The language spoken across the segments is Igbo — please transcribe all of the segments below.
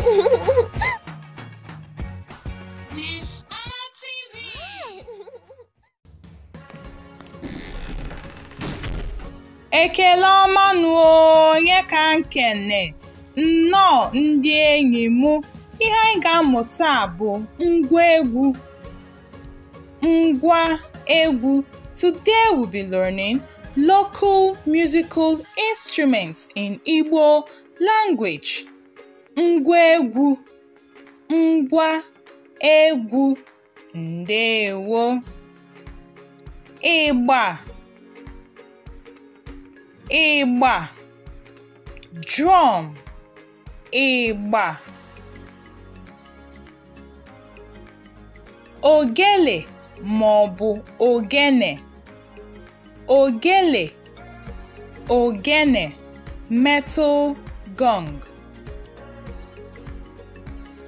Ekele ọma Ekele ọmanụ onye ka nkene nnọọ ndị enyi m ihe anyị ga amụta bụ ngwa egwu ngwa egwu today we be learning local musical instruments in Igbo language ngwa egwu ngwa egwu ndewo ịgba ịgba drum ịgba ogele ma ọ bụ ogene ogele ogene metal gong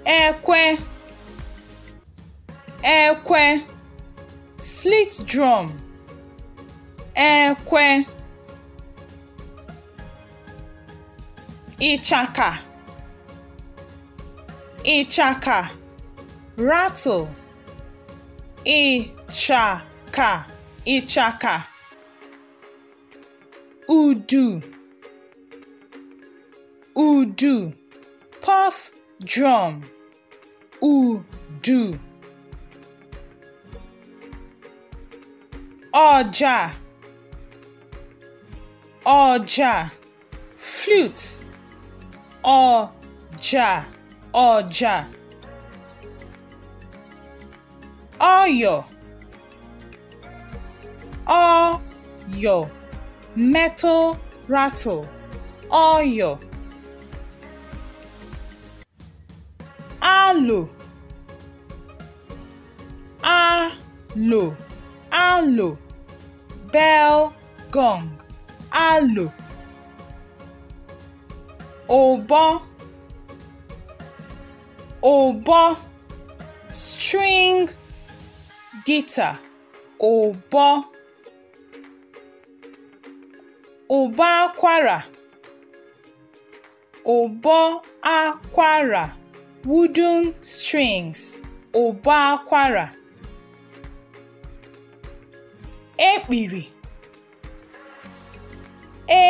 ekwe ekwe slit drum ekwe ịchaka ịchaka rattle ịchaka ịchaka udu udu puff drum udu ọja ọja flute ọja ọja ọyọ ọyọ metal rattle ọyọ alò alò alò bell gong alò ụbọ ụbọ string guitar ụbọ ụbọ akwara ụbọ akwara wooden strings ụbọ akwara ekpiri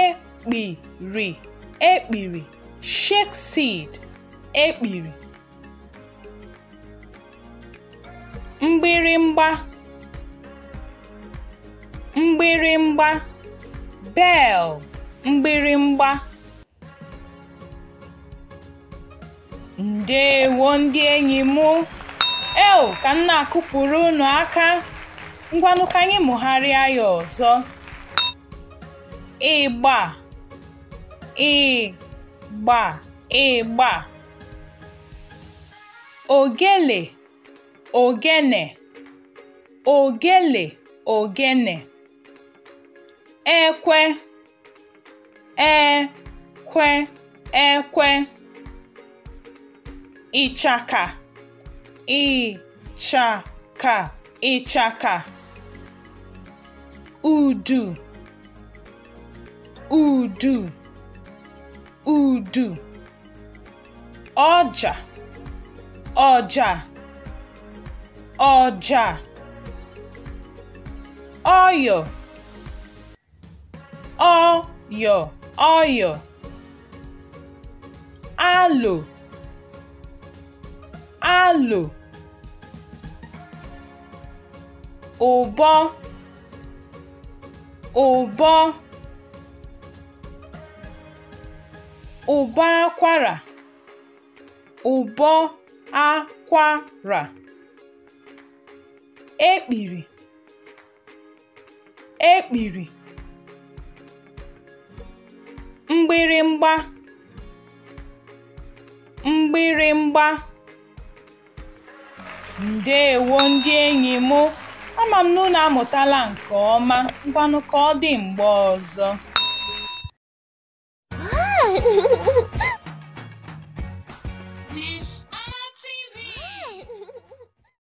ekpiri ekpiri shake seed ekpiri mgbịrịmgba mgbịrịmgba bell mgbịrịmgba Ndewo ndị enyi m! Eoo, ka m na-akụpụrụ unu aka. Ngwanụ ka anyị mụgharịa ya ọzọ. Ịgba, ịgba, ịgba. Ogele, ogene, ogele, ogene. Ekwe, ekwe, ekwe. ịchaka ịchaka ịchaka udu udu udu ọja ọja ọja ọyọ ọyọ ọyọ alo alo ụbọ ụbọ ụbọ akwara ụbọ akwara ekpiri ekpiri mgbịrịmgba mgbịrịmgba Ndeewo ndị enyi m, ama m na unu amụtala nke ọma, ngwanụ ka ọ dị mgbe ọzọ!